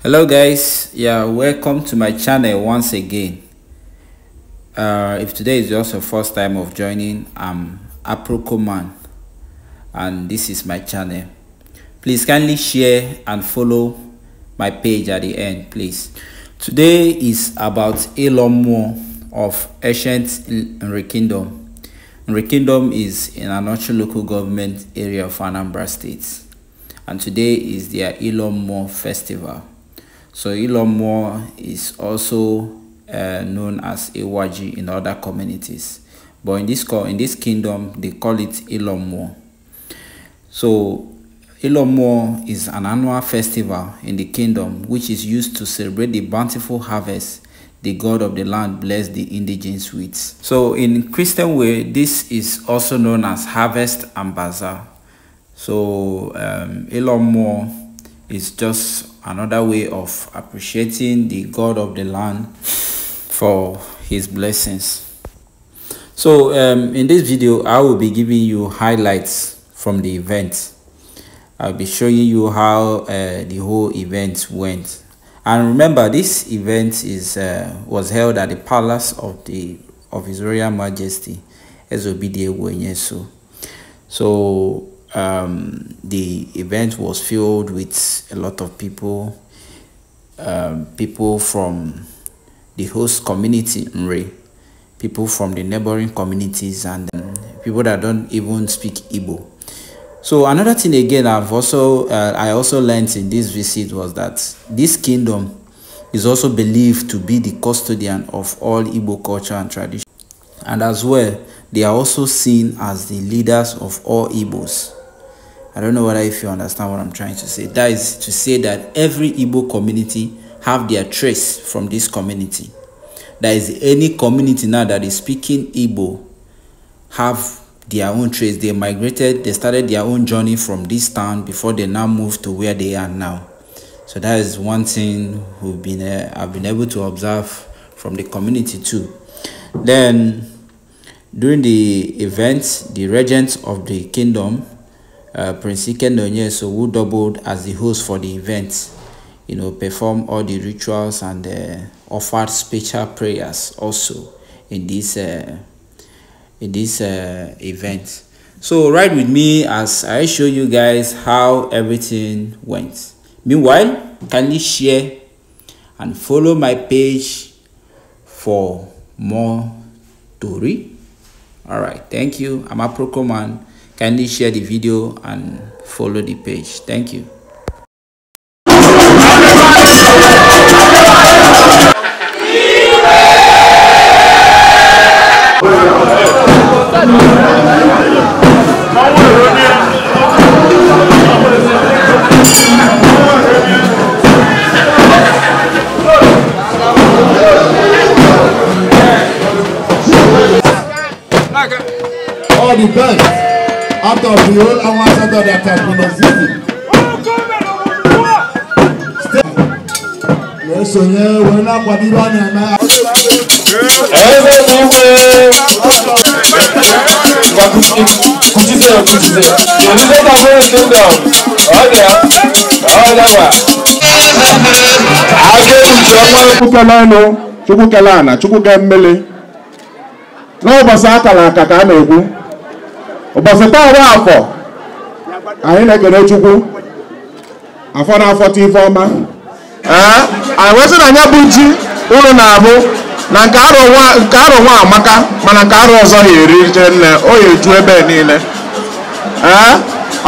hello guys yeah welcome to my channel once again uh, if today is just your first time of joining i'm aprocoman and this is my channel please kindly share and follow my page at the end please today is about elon musk of ancient Nri Kingdom. Nri Kingdom is in actual local government area of Anambra State. And today is their Ilomo Festival. So Ilomo is also uh, known as Iwaji in other communities. But in this, in this kingdom, they call it Ilomo. So Ilomo is an annual festival in the kingdom which is used to celebrate the bountiful harvest the God of the land bless the indigenous with. So in Christian way, this is also known as harvest and bazaar. So um, lot more. is just another way of appreciating the God of the land for his blessings. So um, in this video, I will be giving you highlights from the event. I'll be showing you how uh, the whole event went. And remember, this event is uh, was held at the palace of the of His Royal Majesty Wenyesu. So um, the event was filled with a lot of people, um, people from the host community Mre, people from the neighboring communities, and um, people that don't even speak Igbo so another thing again I've also uh, I also learned in this visit was that this kingdom is also believed to be the custodian of all Igbo culture and tradition. And as well, they are also seen as the leaders of all Igbos. I don't know whether if you understand what I'm trying to say. That is to say that every Igbo community have their trace from this community. There is any community now that is speaking Igbo have their own trace. They migrated, they started their own journey from this town before they now moved to where they are now. So that is one thing we've been uh, I've been able to observe from the community too. Then during the event, the regent of the kingdom, uh, Prince so, who doubled as the host for the event, you know, performed all the rituals and uh, offered special prayers also in this uh, in this uh, event so ride with me as i show you guys how everything went meanwhile kindly share and follow my page for more story all right thank you i'm a command kindly share the video and follow the page thank you Thank you. all the best out of the whole àwọn asọ́tọ̀ that has been existing. Lẹ́sọ yẹn wọ́n náà pàdé bá ní àná. Ẹgbẹ́ gbogbo. jíṣẹ́ òjijì èmi tó kàn fún ìkéńdọ̀ ọ̀dẹ̀ ọ̀dẹ̀wà. agéjọmọ chukwu akara aka ka a na-ekwu ụbọchị taa bụ afọ anyị na chukwu afọ na afọ ọma ee anyị anya ji ụlọ na-abụ na nke arọ nwa amaka mana nke arọ ọzọ ya erije nne o ya eju ebe niile ee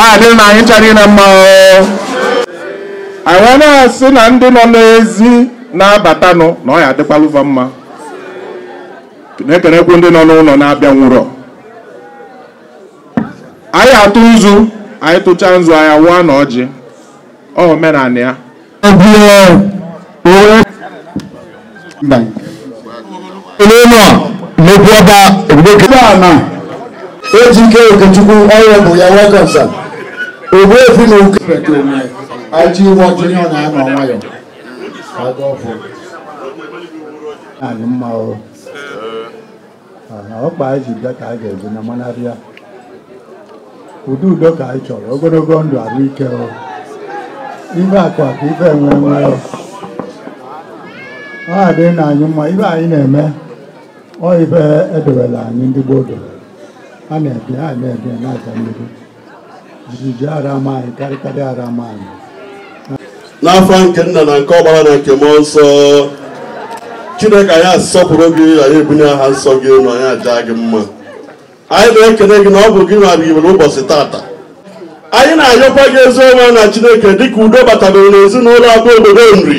ọ dịrị na anyị ncha niile mma anyị wee na-asị na ndị nọ n'ezi na-abatanụ na ọ ya adịkwaluva mma na-ekenekwu ndị nọ n'ụlọ na-abịa nwụrọ anyị atụ nzu anyị tụcha nzu anya wụọ na ọjị omenala ya eléyìnà lóbi ọba ògbókè. ọba àná ejike okechukwu ọrụ bụ ya wekọsa ogbu efi na oke pete onwe aji ụgbọ jiri ọ na-anọ nwayọ aga ọfụ anyị mma ọrụ ọkpa anyị ji bịa ka anyị ga-ebi na manarịa ụdị udo ka anyị chọrọ ogologo ndụ ahụike ife akụ akụ ife enwe enwe ọ adịghị na anyị mma ibe anyị na-eme ọ ibe edowela anyị ndị gboo doro a na-ebi a na-ebi na-aja mmiri jijiji ara anyị karịkarị ara anyị n'afọ nke nna na nke ọgbara na nke mmụọ nsọ chineke anyị asọpụrụ gị anyị ebunye aha nsọ gị na anyị aja gị mma anyị na-ekele gị na ọ bụ gị nwara iwere ụbọchị tata anyị na-ayọkwa gị ezi ọma na chineke dịka udo batabere n'ezinụlọ agba obodo nri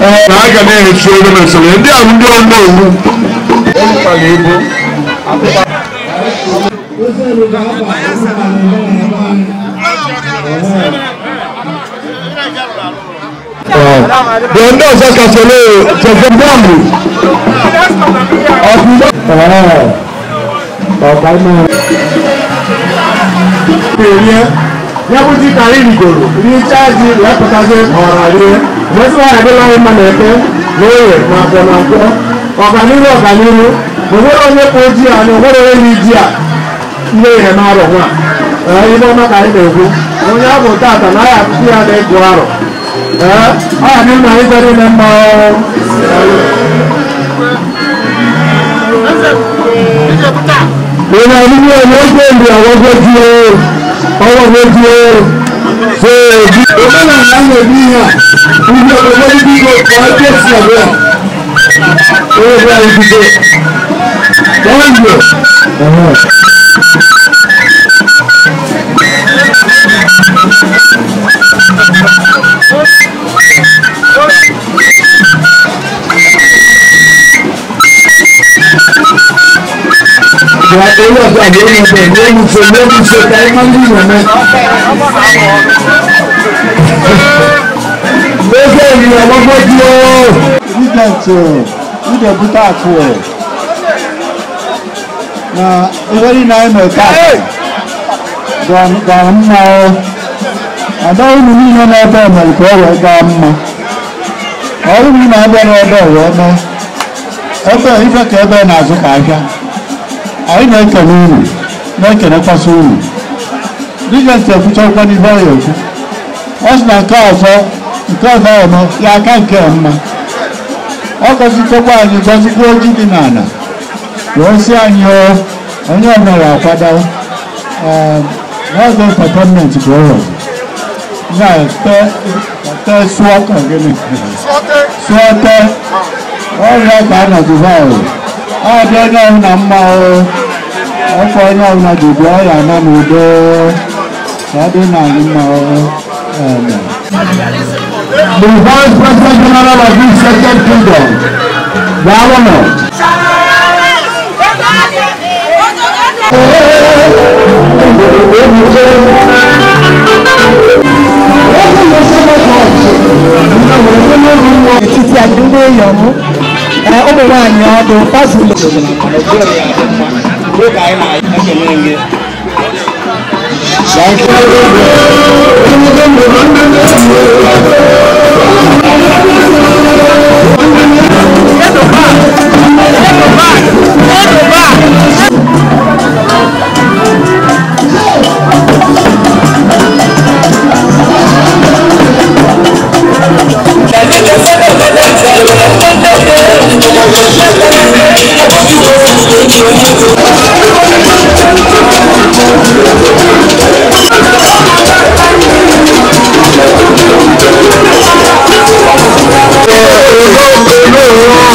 na aga na-echi oge na usoro ndị ahụ ndị ọnụ owu ekwukwala ego the end of the solo to the bomb of the oh oh my yakuti Karim Goro ní chaji lẹ́pọ̀tàṣe ọ̀ràlẹ́ mọ́síwá àdéláwé mọ̀nẹ́kẹ́ lóye nàbọ̀nàbọ̀ ọ̀gánílù ọ̀gánílù òwúrọ̀ onye kò di à ní òwúrọ̀ onye di à ilé ìhẹ̀ náà rọ̀ wọn à ibe ọma ka anyị na-ekwu onye abụ tata na ya akụkụ ya na-egwu arọ ọ ya n'ime anyị kwere ime mma onye ọdịnihu onye ogbe mgbe ọgwụgwọ di ya ọwọ́ méjì ó ṣe èjì. ọmọlá àwọn ẹbí yàn ibi ọmọ níbi ọkọ ajẹsí ọ̀rẹ́ owó bí a ibi dé wọ́n yọ. Thank you. wà owó na ìwérí na-abịa n'ebe ọ̀rọ̀ eme ebe ife ka ebe na-azụ ka ahịa ai naika n'uru naika na-ekpasa uru dịgasị ekwucha ụgwọ n'ihe ọya ekwu ọ sị na nke ọzọ nke ọzọ ọma ya aka nke mma ọ gọzitokwa anyị gọzikwa oji dị n'ala wee sị anyị onye ọbụla akwado n'ọzọ entertainment bụ ọrụ ọzọ na-ete sụọ ka gịnị sụọ tee ọrịa ka a nọdụba ọrụ ọ dị onye ọbụla mma ọrụ afọ onye ọbụla ji bụọ ya na n'udo ka ọ dị The Vice President General of the Second Kingdom, Gawano. Etiti adúlé èèyàn mú, ọmọ nwaanyị ọdún fásitì. nước ai lại các chuyện này kia Hãy subscribe cho kênh Ghiền Mì Gõ Để không bỏ lỡ những video hấp dẫn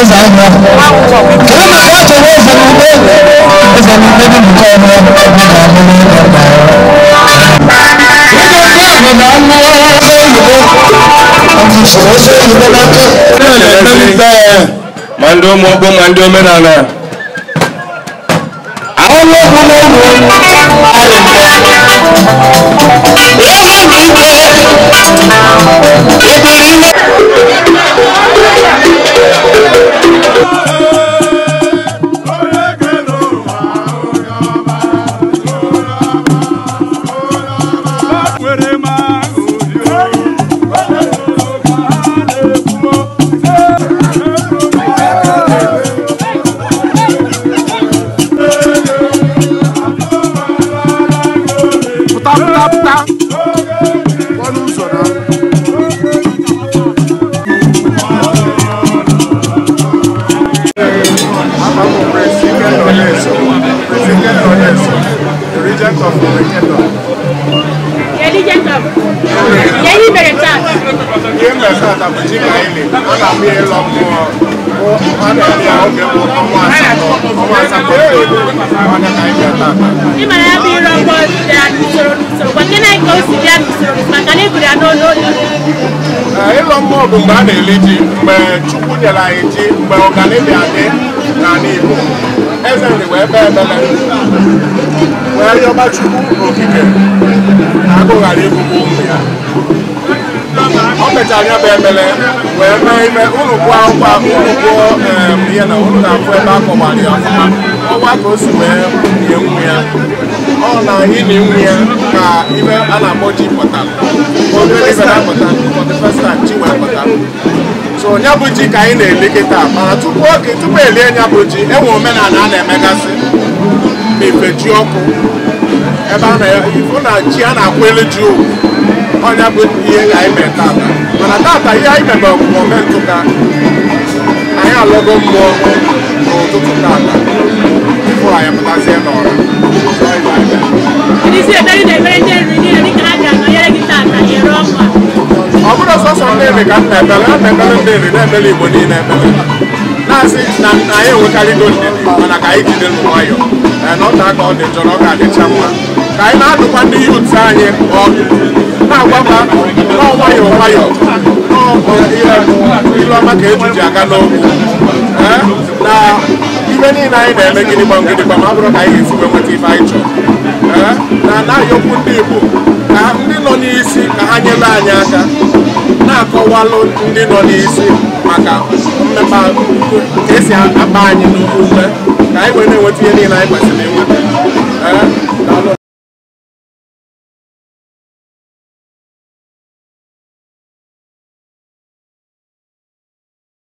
ẹsẹ ẹgbẹ kìlọ náà wọn tó wọ ẹsẹ ní ilé ẹsẹ ní ilé ní nǹkan ọmọ ẹgbẹ ọmọ ọmọ ní ọgbà ẹwọ. nínú ní àgbẹ̀dá mú ọlọ́sọ òyìnbó àti ìṣòro sí òyìnbó lọ́kẹ́. mande ọmọ ọgbọ mande ọmọ nana. àwọn ológun ló wù ú àlùfẹ́. lọ́wọ́ mi ń jẹ́ ìbàdí náà. Yẹli jẹ tam. Yẹli bẹ̀rẹ̀ tam. Yẹli bẹ̀rẹ̀ tam tàbí tí kò yẹli. A nà mí yẹ lọ mú Ịlọ mmụọ bụ mgbe a na-eli ji, mgbe Chukwu nyere anyị ji, mgbe ọganihu adị, ezere wee kpee ekpere wee rịọba chukwu n'okike na agụ ghara ịbụbụ ụmụ ya o mechara ya bụ ekpere wee mee ime unu gụọ akwụkwọ ahụ unu gụọ ihe na unu na-afụ ebe akọwara ya ọfụma ọwa ka o si wee nye nwa ya ọ na ịnị nwa ya ka ibe a na-akpọ ji pụtara obere ibe na-apụta for the first time chi wee pụtara so ya bụ ji ka anyị na-eli kịta mana tupu oge tupu elie ya bụ ji enwe omenala a na-emegasị ma ife ji ọkụ ebe a na-efu na ji a na-akwụ elu ji owu ọnya bụ ihe anyị mee tata mana tata ihe anyị mebe ọmụmụ ka anyị alọgo mmụọ n'ụtụtụ tata tupu anyị pụtazie n'ọra nna ekpere na-ekpere ndị nri na igbo niile ekpere na-asị na anyị enwekarịgo ndidi mana ka anyị jide n'ụwa nwayọọ na aka ọ dị njọ na ọ ga-adịcha mma ka anyị na-adụkwa ndị yut anyị ọdụ na-agwakwa nọọ nwayọọ nwayọọ ilu ọma ka ejiji aga n'okwu na ibe niile anyị na-eme gịnị gbam gịnị gbam ọ ka anyị ga-esiwe nweta ife anyị chọrọ na anaghị okwu ndị igbo ka ndị nọ n'isi ka ha nyere anyị aka na-akọwalụ ndị nọ n'isi maka mmepe ka esi akpa anyị n'ukwu ka anyị wee na-enweta ihe niile anyị kwesịrị enweta